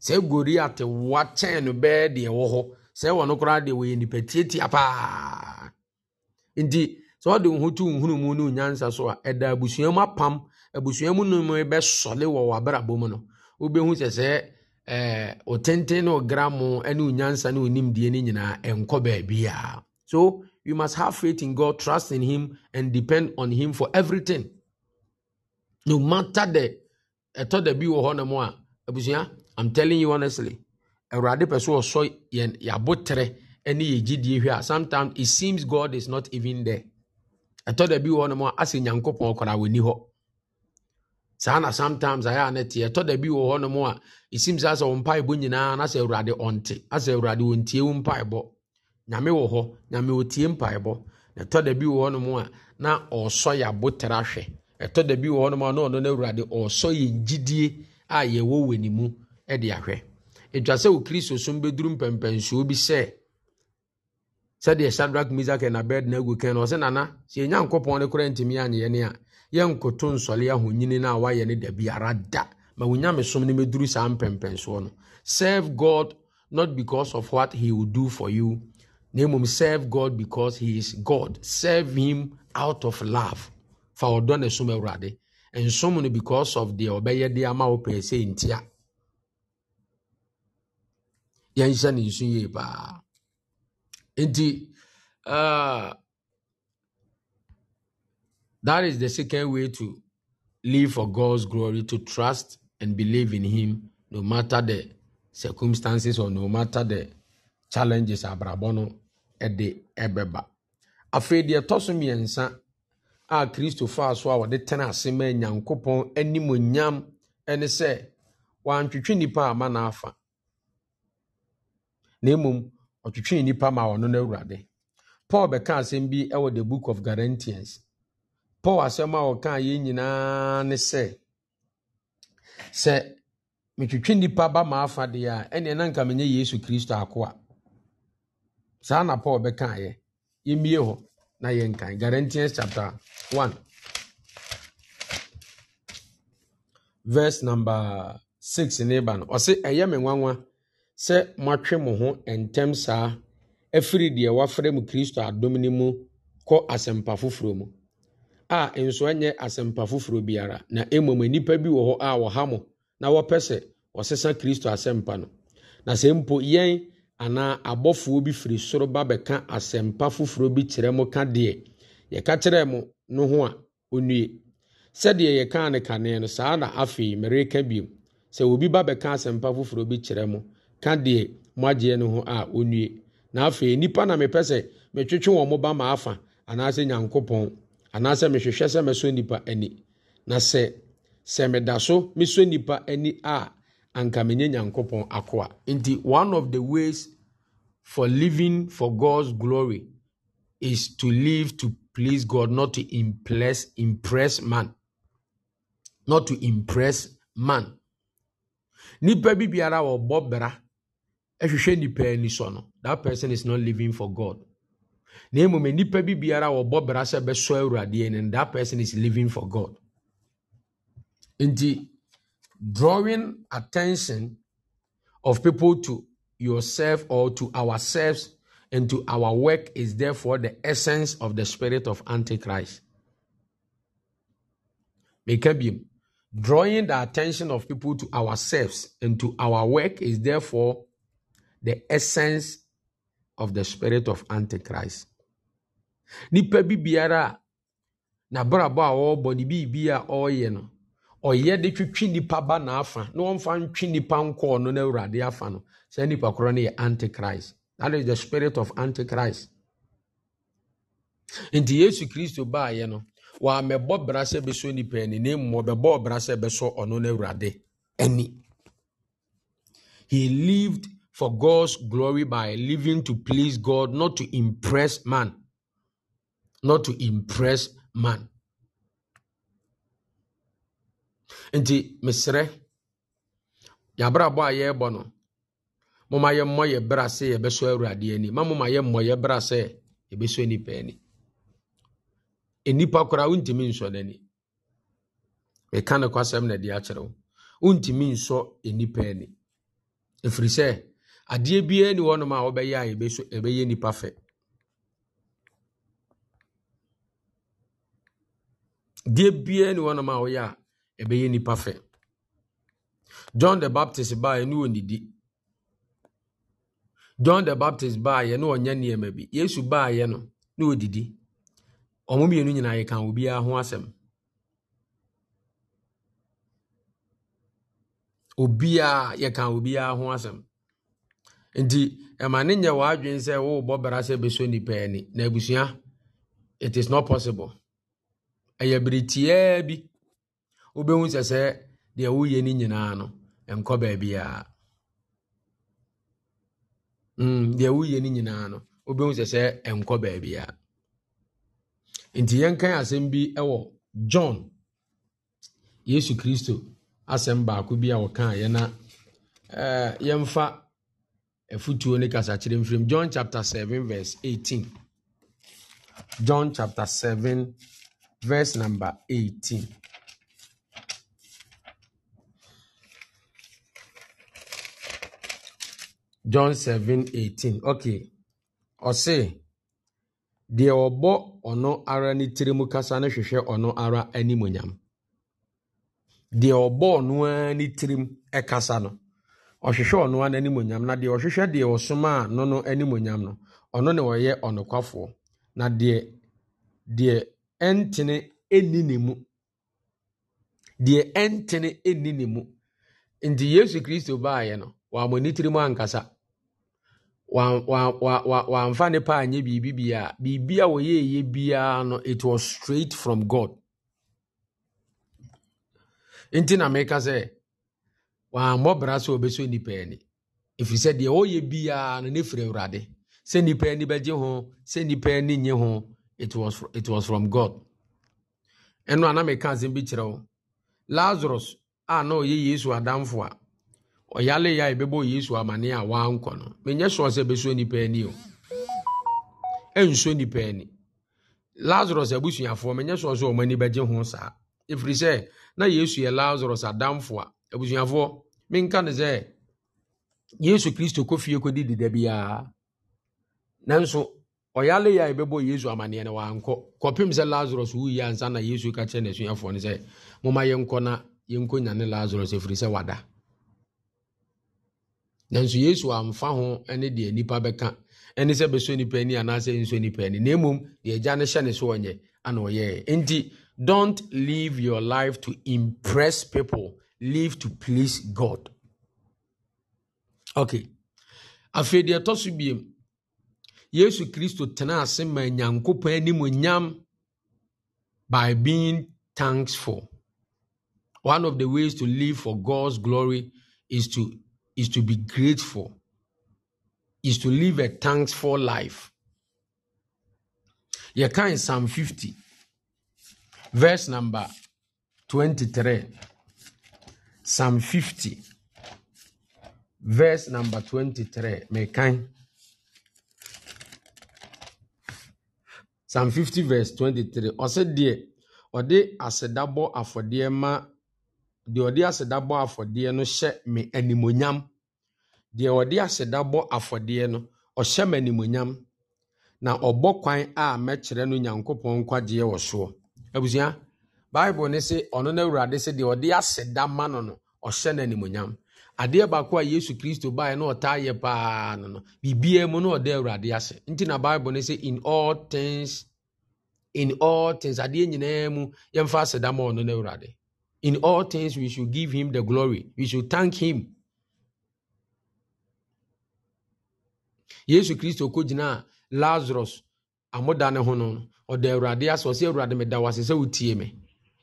sɛ goriat wa kyɛn no bɛɛ deɛ ɛwɔ hɔ sɛ ɛwɔ no koraa deɛ wɔyɛ nipa tietia paa nti sɛ wɔde wo ho to wo hunu mu ne wo nyansa so a ɛda abusua mu apam abusua mu nom bɛsɔle wɔ w'abrabɔ mu no wobɛhu sɛ sɛ ɛɛ o tenten ne o gramo ne o nyansa ne o nimdie ne nyinaa ɛnkɔ baabiara so you must have faith in God trust in him and depend on him for everything no matter the ɛtɔ da bi wɔ hɔ nom a abusua i'm telling you honestly awurade pɛ so ɔsɔ yɛn yɛabotere ne yɛgyidie hwɛ a sometimes it seems God is not even there ɛtɔ da bi wɔ hɔnom a asɛ nyankopɔn koraa wɔni hɔ saa na sometimes ayɛ a ne teɛ ɛtɔ da bi wɔ hɔnom a ɛsim sɛ asɛ wo mpaebɔ nyinaa na asɛ awurade ɔnte asɛ awurade ɔntie wo mpaebɔ nyame wɔ hɔ nyame ɔtie mpaebɔ na ɛtɔ da bi wɔ hɔnom a na ɔsɔ yɛ abotere ahwɛ ɛtɔ da bi wɔ hɔnom a na ɔno no awurade ɔsɔ yɛ gyidie a yɛwɔ wɔ ne mu de ahwɛ ɛtwa sɛ wo kristo som bɛduru mpɛmpɛnsuo bi sɛ sɛdeɛ shadrach misak and abednego kɛn no ɔsɛ nana sɛ yɛnya nkɔpɔn no kora ntumi anyɛ ne a yɛnkoto nsɔle ahonyini no a wayɛ no da biara da ma wonyame som no mɛduru saa mpɛmpɛnsoɔ no serve god not because of what he will do for you na mmom serve god because he is god serve him out of love fa ɔdɔ na som awurade nsom no because of deɛ ɔbɛyɛ de ama wo pɛɛ sɛ ntia yɛnhyɛ ne nsu yie paa nti ah, that is the second way to live for god's glory to trust and believe in him no matter the circumstances or no matter the challenges abrabɔ no de bɛba afei deɛ ɛtɔ so mmiɛnsa a kristo faa so a wɔde tena ase ma nyankopɔn animonyam ne sɛ wantwitwe nnipa ama n'afa na mmom ɔtwetwee nnipa ma ɔno no awurade paul bɛka asɛm bi wɔ the book of Guarantees. paul asɛm a ɔka yɛn nyinaa ne sɛ sɛ metwetwe nnipa ba ma a ɛneɛ na nka menyɛ yesu kristo ako a saa na paul bɛkaeɛ yɛmmie hɔ na yɛnkan chapter 1 verse number 6 ne ba sɛ moatwe mo ho ntɛm saa afiri deɛ wɔafrɛ mu kristo adom no mu kɔ asɛmpa foforɔ mu a nso nyɛ asɛmpa foforɔ biara na mmom nnipa bi wɔ hɔ a wɔha mo na wɔpɛ sɛ wɔsesa kristo asɛmpa no na sɛ mpo yɛn anaa abɔfoɔ bi firi soro ba bɛka asɛmpa foforɔ bi kyerɛ mo ka deɛ yɛka kyerɛɛ mo no ho a ɔnnue sɛdeɛ yɛkaa no kane no saa na afei mereka biom sɛ obi ba bɛka asɛmpa foforɔ bi kyerɛ mo ka deɛ mo agyeɛ no ho a ɔnnue na afei nnipa na mepɛ sɛ metwetwe wɔn mo ba ma afa anaasɛ nyankopɔn anaasɛ mehwehwɛ sɛ mesɔ nnipa ani na sɛ sɛ meda so mesɔ nnipa ani a anka menye nyankopɔn akoa nti one of the ways for living for god's glory is to live to please god not to impress impress man not to impress man nipa bi biara wɔ bɔ bra ɛhwehwɛ nipa ani so no that person is not living for god na mmom nipa bi biara wɔbɔ bra sɛ bɛsɔ awurade ani that person is living for god nti drawing attention of people to yourself or to ourselves and to our work is therefore the essence of the spirit of antichrist meka drawing the attention of people to ourselves and to our work is therefore the essence of the spirit of antichrist nipa bi biara a n'abrabɔ a ɔrebɔ ne biribi a ɔreyɛ no ɔyɛ de twitwi nipa ba n'afa na wɔmfa ntwi nipa nkɔɔ no na awurade afa no saa nipa korɔ no yɛ antichrist that is the spirit of antichrist nti yesu kristo baayɛ no wɔamɛbɔ bra sɛ bɛsɔ nipa ani na mmɔ bɛbɔ bra sɛ bɛsɔ ɔno no awurade ani he lived for God's glory by living to please God, not to impress man. Not to impress man. And the yɛabrabɔ a yɛrebɔ no moma yɛmmɔ yɛ berɛ sɛ yɛbɛsɔ Awurade ani ma moma yɛmmɔ yɛ berɛ sɛ yɛbɛsɔ unti ani nnipa koraa wontumi nsɔ n'ani meka ne kwasɛm na de akyerɛ wo wontumi nsɔ nnipa ani adeɛ biara ni hɔnom a wɔbɛyɛ a yɛbɛso yɛbɛyɛ nipa fɛ deɛ biara ni hɔnom a wɔyɛ a yɛbɛyɛ nipa fɛ john the baptist baa yɛne ɔnidi john the baptist baa yɛ ne ɔnyɛ nneɛma bi yesu baa yɛ no ne ɔdidi ɔmo mmienu nyinaa yɛka obiara ho asɛm obiara yɛka obiara ho asɛm nti ɛma ne nyɛ w'adwene sɛ worebɔ bra sɛ bɛsɔ nipa ani na abusua it is not possible ɛyɛ bere bi wobɛhu sɛ sɛ deɛ woyɛ no nyinaa no nkɔ baabiaa mm, deɛ woyɛ no nyinaa no wobɛhu sɛ sɛ bi john yesu kristo asɛm baako bi a wɔkaa na afutuo ne kasakyerɛ mfirim john chapter 7 verse 18 john chapter 7 verse number 18 john 7 18 okay ɔse deɛ ɔbɔ ɔno ara ne tiri mu kasa no hwehwɛ ɔno ara animonyam deɛ ɔbɔ ɔno ara ne tirim ɛkasa no ɔhwehwɛ ɔno a n'animonyam na deɛ ɔhwehwɛ deɛ ɔsoma a no no animonyam no ɔno ne ɔyɛ ɔnokwafoɔ na deɛ deɛ ɛntene ɛnni ne mu deɛ ɛntene ɛnni ne mu nti yesu kristo baayɛ no wɔamɔ ne tirim ankasa wɔamfa ne pa anyɛ biribi biara biribi a wɔyɛɛyɛ biara no it was straight from god nti na meka sɛ wɔammɔ bra sɛ wɔbɛsɔ nnipa ani ɛfiri sɛ deɛ ɔyɛ biara no ne firi awurade sɛ nnipa ani bɛgye ho sɛ nnipa ani nye ho it was, it was from god ɛno a na meka asɛm bi kyerɛ wo lazarus a na ɔyɛ yesu adamfo a ɔyale yɛ a ɛbɛbɔ yesu amane a wankɔ no menyɛ sɔɔ sɛ ɛbɛsɔ nnipa ani o ɛnsɔ nnipa ani lazarus abusuafoɔ menyɛ sɔɔ sɛ ɔmani bɛgye ho saa ɛfiri sɛ na yesu yɛ lazarus adamfo a abusuafoɔ menka no sɛ yesu kristo kɔ fie kɔdi deda biara nanso ɔyale yɛ a yɛbɛbɔ yesu amanneɛ no wankɔ kɔpem sɛ lazarus wuyɛ ansa na yesu ka kyerɛ n'asuafoɔ no sɛ moma yɛnkɔ na yɛnkɔ nyane lazarus ɛfiri sɛ wada nanso yesu amfa ho ne deɛ nipa bɛka ɛne sɛ bɛsɔ nipa ani anaasɛ nsɔ nipa ani na mmom deɛ agya no hyɛ ne so ɔnyɛ ana ɔyɛɛ nti don't live your life to impress people live to please God. Okay. Afei deɛ ɛtɔ so biem, Yesu Kristo tena ase ma Nyankopɔn anim nyam by being thankful. One of the ways to live for God's glory is to is to be grateful. Is to live a thankful life. Yɛka in Psalm 50 verse number 23. Psalm 50, verse number 23. Mekan. Psalm 50, verse 23. Ɔsɛ deɛ ɔde asɛdabɔ afɔdeɛ ma deɛ ɔde asɛdabɔ afɔdeɛ no hyɛ me animonyam. Deɛ ɔde asɛdabɔ afɔdeɛ no, ɔhyɛ me animonyam. Na ɔbɔ kwan a mɛkyerɛ no Nyankopɔn nkwagyeɛ wɔ soɔ. Abusua. baịbụl ne se ɔno no awurade sɛ deɛ ɔde asị da ma nọ ọhye na no animonyam adeɛ baako a yesu kristo baeɛ na ɔtaa yɛ paa no nọ biribiaa mu na ɔde awurade ase nti na baịbụl ne sɛ in all things in all things adeɛ nyinaa mu yɛmfa asɛ da ma ɔno no awurade in all things we should give him the glory we should thank him yesu kristo kɔgyinaa lazarus amoda ne ho no ɔda awurade ase ɔsɛ awurade meda wo ase sɛ wotie me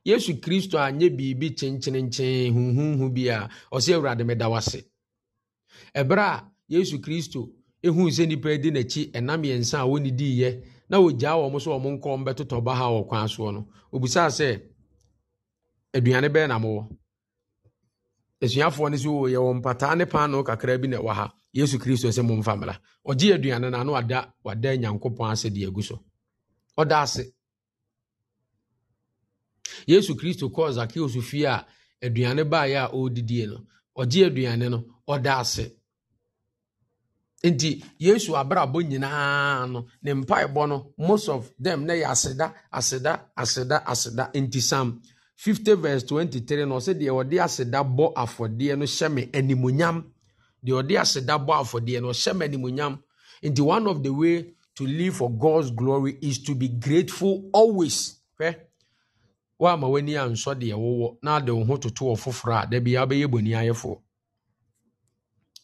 yesu kristo anyɛ biribi kyenkyenenkyee huhuhu bi a ɔsɛ awurade meda wase ɛberɛ a yesu kristo ɛhuu sɛ nnipa di n'akyi ɛnam yɛnsa a wɔne diiɛ na ɔgyaa wɔ m so ɔmo nkɔm bɛtotɔ ba ha wɔ kwan soɔ no obisaa sɛ aduane bɛɛ na mowɔ asuafoɔ n'isi sɛ o yɛwɔ mpataa ne paano kakraa bi na ɛwɔ ha yesu kristo mụ momfa mmra ɔgye aduane no ano wada wada nyankopɔn asị de agu so ɔda ase yesu kristo kɔɔ zakeus fie a aduane baeɛ a ɔredidie no ɔgye aduane no ɔda ase nti yesu abrabɔ nyinaa no ne mpaebɔ no most of them na yɛ aseda aseda aseda aseda nti sam 50 verse 23 no ɔsɛ deɛ ɔde aseda bɔ afɔdeɛ no hyɛ me animonyam deɛ ɔde aseda bɔ afɔdeɛ no ɔhyɛ me animonyam nti one of the way to live for God's glory is to be grateful always hwɛ woama w'ani a ansɔ deɛ wowɔ na ade wo ho toto wɔ foforɔ a da bia wobɛyɛ bɔni ayɛfoɔ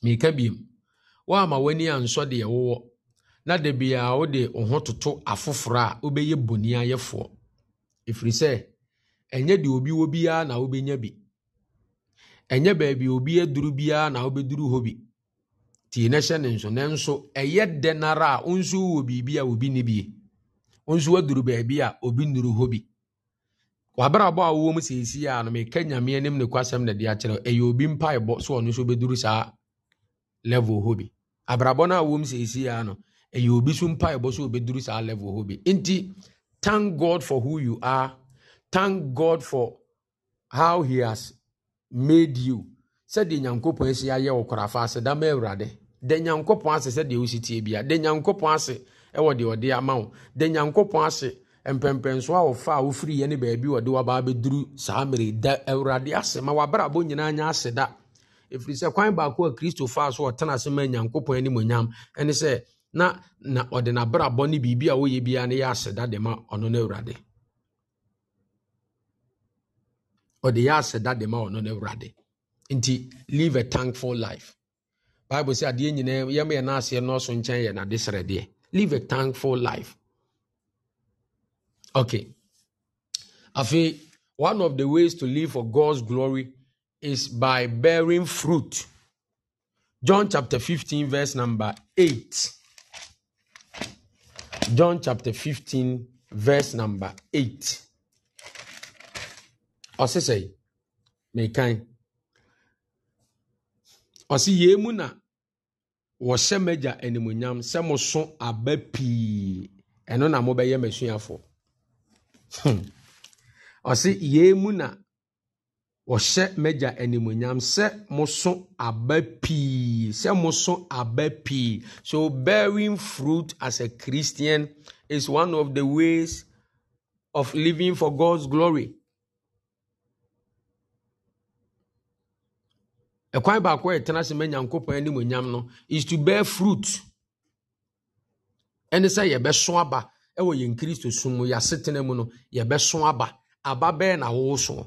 mirika biom woama w'ani a ansɔ deɛ wowɔ na da biaa wode wo ho toto afoforɔ a wobɛyɛ bɔni ayɛfoɔ ɛfiri sɛ ɛnyɛ deɛ obi wɔ biara na wobɛnya bi ɛnyɛ baabi obi aduru biara na wobɛduru hɔ bi tie na hyɛ ne nso nanso ɛyɛ dɛ nara a wo nso wowɔ biribi a obi ni bie wo nso woaduru baabi a obi nnuru hɔ bi wabrabɔ a wɔwɔ mu seesie a no meka nyame anim ne kwasɛm na de akyerɛ ɛyɛ obi mpaebɔ so ɔno nso bɛduru saa level hɔ bi abrabɔ no a wɔwɔ mu seesie a no ɛyɛ obi so mpaebɔ so ɔbɛduru saa level hɔ bi nti thank god for who you are thank god for how he has made you sɛdeɛ nyankopɔn asi ayɛ wɔ korafa ase dama awurade da nyankopɔn ase sɛdeɛ wosi tie bia da nyankopɔn ase ɛwɔ deɛ ɔde ama wo da nyankopɔn ase mpɛmpɛnsoɔ a wɔfa a wofiriyɛ ne baabi wɔde wabaa bɛduru saa mmere da awurade ase ma wabrabɔ nyinaa nyɛ ase da ɛfiri sɛ kwan baako a kristo faa so ɔtena ase ma nyankopɔn animonyam ɛne sɛ na na ɔde n'abrabɔ ne biribi a wɔyɛ biara no yɛ aseda de ma ɔno no awurade ɔde yɛ aseda de ma ɔno no awurade nti live a thankful life bible sɛ adeɛ nyinaa yɛma yɛ no aseɛ nɔɔso nkyɛn yɛ nade srɛdeɛ live a thankful life Okay. I feel one of the ways to live for God's glory is by bearing fruit. John chapter 15, verse number 8. John chapter 15, verse number 8. Ɔse say, mekan. Ɔse yie mu na wɔhyɛ m'agya animuonyam sɛ mo so aba pii. Ɛno Hmm. ɔse yei mu na wɔhyɛ m'agya animonyam sɛ moso aba pii sɛ moso aba pii so bearing fruit as a christian is one of the ways of living for god's glory ɛkwan baako a ɛtena sɛ ma nyankopɔn animonyam no is to bear fruit ɛne sɛ yɛbɛso aba ɛwɔ yɛn kristo som mu yɛasetena mu no yɛbɛso aba aba bɛɛ na wosoɔ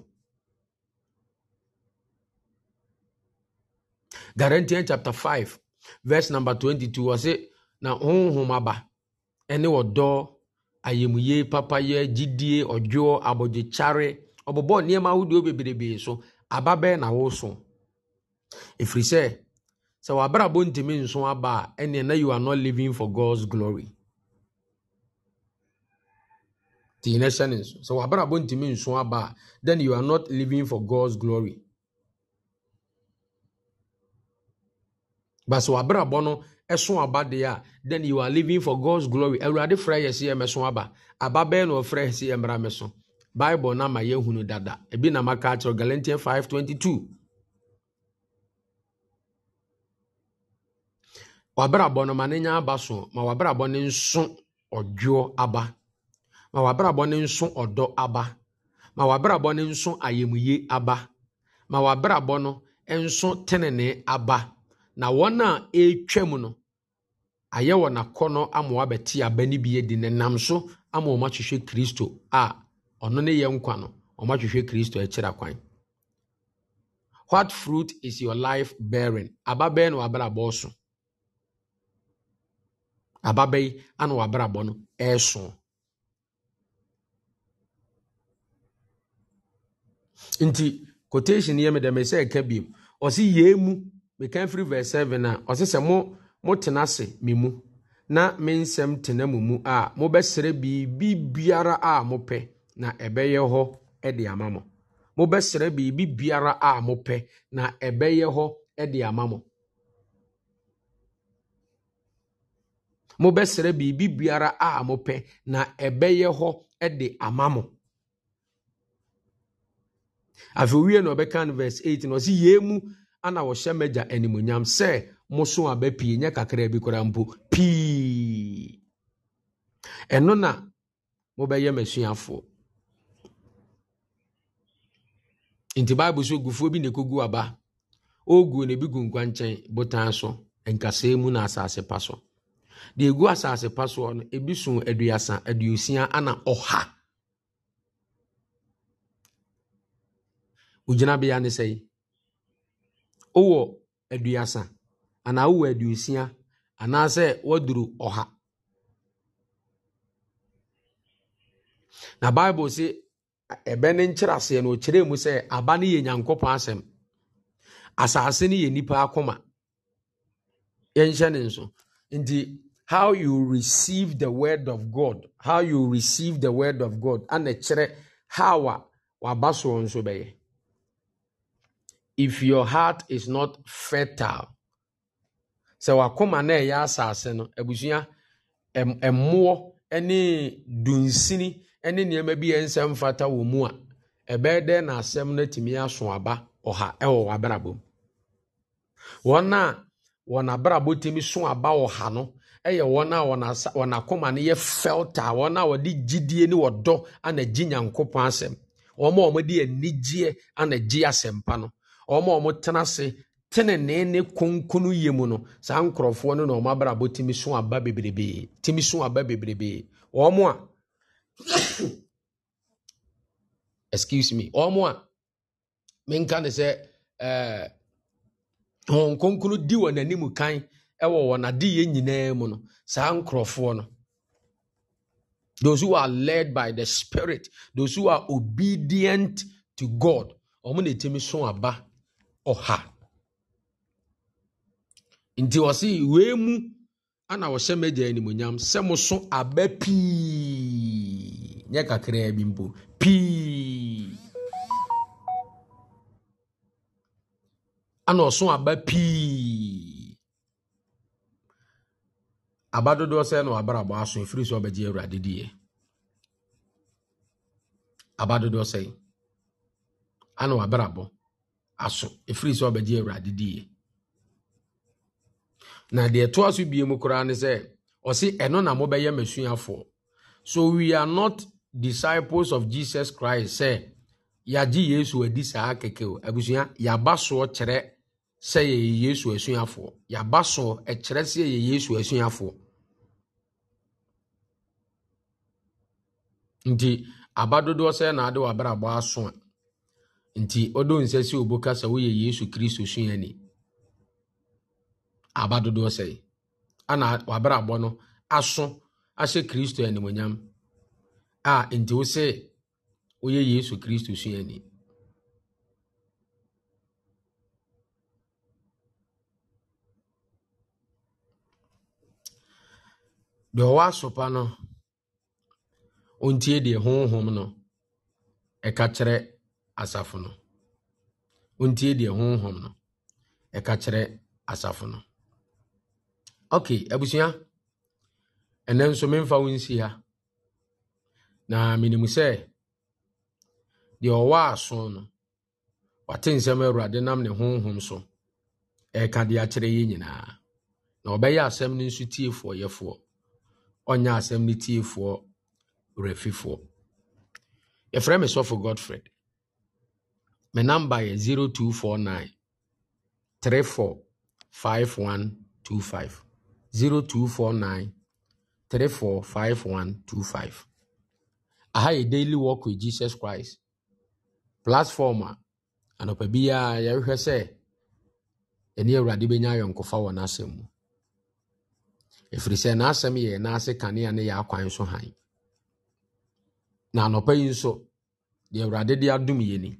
Galatians chapter 5 verse number 22 wɔse na honhom aba ɛne ɔdɔ ayamye papayɛ gyidie ɔdwoɔ abɔgyekyare ɔbɔbɔ nneɛma ahodoɔ bebrebee so aba bɛɛ na woso ɛfiri sɛ sɛ w'abrabɔ ntumi nso aba a ɛneɛ na you are not living for God's glory nti yɛn hyɛ ne nso sɛ wabrabɔ ntumi nso then you are not living for god's glory but sɛ wabrabɔ no ɛso aba deɛ a then you are living for god's glory awurade frɛ yɛ sɛ yɛ mɛso aba aba bɛɛ na ɔfrɛ yɛ sɛ yɛ mmra mɛso bible na ma yɛhunu dada ebi na maka akyerɛ galatian 522 wabrabɔ no ma ne nya aba so ma wabrabɔ ne nso ɔdwoɔ aba ma w'abrabɔ no nso ɔdɔ aba ma w'abrabɔ no nso ayamye aba ma w'abrabɔ no nso tenene aba na wɔn a ɛretwam no ayɛ wɔn akɔnɔ ama wabɛte aba no bi adi nenam so ama wɔn ahwehwɛ kristo a ɔno ne yɛ nkwa no wɔn ahwehwɛ kristo akyira kwan what fruit is your life bearing aba bɛyɛ na w'abrabɔ so aba ana w'abrabɔ no ɛreso. nti quotation yɛ medɛ mesɛ ɛka biom ɔse yee mu meka firi verse 7 a ɔse sɛ mo motena ase me mu na me nsɛm tena mo mu a mobɛsrɛ biribi biara a mopɛ na ɛbɛyɛ hɔ de ama mo mobɛsrɛ biribi biara a mopɛ na ɛbɛyɛ hɔ de ama mo mobɛsrɛ biribi biara a mopɛ na ɛbɛyɛ hɔ de ama mo afei owie na ɔbɛka no verse 8 na ɔsi yie mu ana wɔhyɛ mɛgya animonyam sɛ moso aba pii nyɛ kakra bi koraa mpo pii ɛno na mobɛyɛ m'asuafoɔ nti bible so gufuo bi na ekugu aba ɔgu na ebi gu nkwa nkwankyɛn botan so nkasa emu na asase pa so deɛ ɛgu asase pa soɔ no ebi so aduasa aduosia ana ɔha ogyinabea ne sɛe wowɔ aduasa anaa wowɔ aduosia anaasɛ woaduru ɔha na bible se ɛbɛ ne nkyerɛ aseɛ no ɔkyerɛɛ mu sɛ aba no yɛ nyankopɔn asɛm asase no yɛ nipa akoma yɛnhyɛ ne nso nti how you receive the word of god how you receive the word of god ana kyerɛ how a waba soɔ nso bɛyɛ if your heart is not fertile sɛ wakoma na ɛyɛ asase no abusua mmoɔ ne dunsini ne nneɛma bi yɛ nsɛm mfata wɔ mu a ɛbɛyɛ dɛn na asɛm no atumi aso aba ɔha ɛwɔ w'abrabɔ mu wɔn a wɔn abrabɔ tumi so aba ɔha no ɛyɛ wɔn a wɔn akoma no yɛ fɛlta wɔn a wɔde gyidie ne wɔdɔ ana gye nyankopɔn asɛm wɔn a wɔde anigyeɛ ana gye asɛmpa no ɔma ɔmo tena ase tenenee ne konkono yie mu no saa nkurɔfoɔ no na ɔmo abrabɔ tumi so aba bebrebee timi so aba bebrebee ɔmo a excuse me ɔmo a menka ne sɛ ɛɛ wɔn konkonu di wɔn anim kan ɛwɔ wɔn adeyɛ nyinaa mu no saa nkurɔfoɔ no. Those who are led by the Spirit, those who are obedient to God, ɔmo na etimi so aba Ọha nti ɔse wee mu ana ɔhyɛ m'agya animonyam sɛ mo so aba pii nyɛ kakraa bi mpo pii ana ɔso aba pii aba dodoɔ sɛ na wabrabɔ aso ɛfiri sɛ ɔbɛgye awurade diɛ aba dodoɔ sɛ ana wabrabɔ aso ɛfiri sɛ ɔbɛgye awurade diiɛ na deɛ ɛtoa so bie mu koraa ne sɛ ɔse ɛno na mobɛyɛ m'asuafoɔ so we are not disciples of jesus christ sɛ yɛagye yesu adi saa kɛkɛ o abusua yɛaba soɔ kyerɛ sɛ yɛyɛ yesu asuafoɔ yɛaba soɔ ɛkyerɛ sɛ yɛyɛ yesu asuafoɔ nti aba dodoɔ sɛ naade wabrabɔ aso a nti ɔdɔ nsa si obo ka sɛ woyɛ yesu kristo suani aba dodoɔ sɛe ana wabrabɔ no aso ahyɛ kristo animonyam a nti wo sɛ woyɛ yesu kristo suani deɛ ɔwɔ asopa no ɔntie deɛ honhom no ɛka kyerɛ asafo no ɔntie deɛ honhom no ɛka kyerɛ asafo no ok abusua ɛnɛ nso memfa wo nsi ha na menim sɛ deɛ ɔwɔ aso no wate nsɛm awurade nam ne honhom so ɛka de akyerɛ yɛ nyinaa na ɔbɛyɛ asɛm no nso tiefoɔ yɛfoɔ ɔnyɛ asɛm no tiefoɔ werɛfifoɔ yɛfrɛ me sɔfo godfred Me number yɛ 0249 345125. 0249 345125. Aha yɛ Daily Walk with Jesus Christ. Platform a anɔpa biara yɛrehwɛ sɛ ɛne Awurade bɛnya ayɔnkofa wɔ n'asɛm mu. Ɛfiri sɛ n'asɛm yɛ n'ase kanea ne yɛ akwan so hann. Na anɔpa yi nso, deɛ Awurade de adom yɛ ni.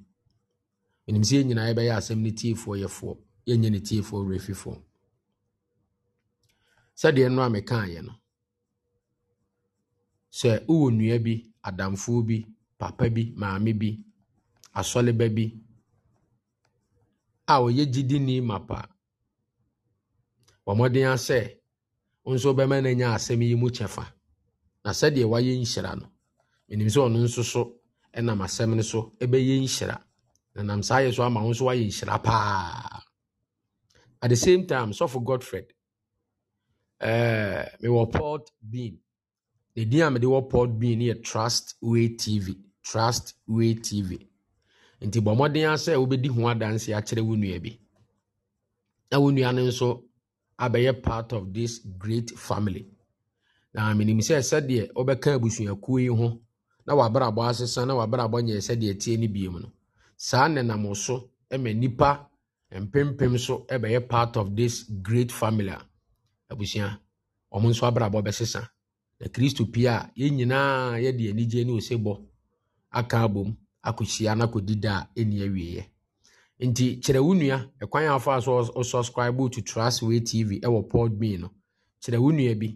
menim sɛ yɛn nyinaa yɛbɛyɛ asɛm no tiefoɔ yɛfoɔ yɛnyɛ ne tiefoɔ werɛfifoɔ sɛdeɛ no a mekaeɛ no sɛ wowɔ nnua bi adamfoɔ bi papa bi maame bi asɔleba bi a ɔyɛ gyidini mapa wɔmmɔden a sɛ nso bɛma no anya asɛm yi mu kyɛfa na sɛdeɛ wayɛ nhyira no menim sɛ ɔno nso so ɛnam asɛm no so ɛbɛyɛ nhyira na nam saa yɛ so ama wo nso wayɛ nhyira paa at the same time sɔfo godfred uh, mewɔ port bean the din a mede wɔ port bean yɛ trust way tv trust way tv nti bɔ mmɔden asɛ wobɛdi ho adanse akyerɛ wo nua bi na wo nua no nso abɛyɛ part of this great family na menim sɛ sɛdeɛ wobɛka abusuakuo yi ho na wabrabɔ asesa na wabrabɔ nyɛ sɛdeɛ tie no biom no saa nenam so ma nipa mpempem so bɛyɛ part of this great family a abusua wɔn nso abrabɔ bɛsesa na kristo pia a yɛn nyinaa yɛde anigye ne osebɔ aka abom akɔhyia na akɔdi da a ɛni awieɛ nti kyerɛ wo nua ɛkwan a afa so ɔsubscribe to Trustway TV ɛwɔ Podbean no kyerɛ wo nua bi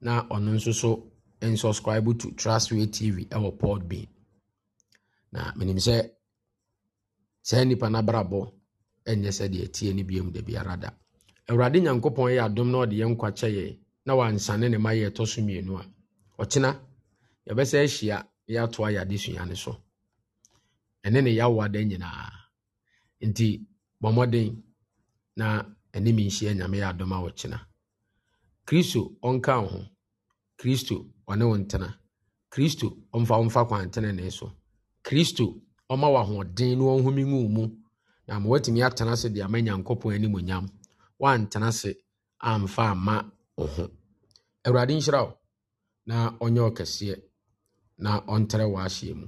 na ɔno nso so nsubscribe to Trustway TV ɛwɔ Podbean na menim sɛ saa nipa no abrabɔ ɛnyɛ deɛ tie no biom da biara da awurade nyankopɔn yɛ adom na ɔde yɛ nkwakyɛ yɛ na wansane ne ma yɛ ɛtɔ so mmienu a ɔkyena yɛbɛsɛ ahyia yɛatoa yɛ adesua no so ɛne ne yɛawoa da nyinaa nti bɔ mmɔden na anim nhyia nyame yɛ adom a ɔkyena kristo ɔnka wo ho kristo ɔne wo ntena kristo ɔmfa wo mfa kwantenene so kristo ɔma w'ahoɔden na ɔnhome ngu mu na ma watumi atena ase de ama nyankopɔn animonyam woantena ase amfa amma wo ho awurade nhyira wo na ɔnyɛ ɔkɛseɛ na ɔntrɛ w'ahyeɛ mu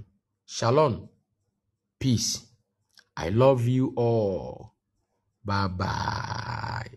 shalom peace i love you all bye bye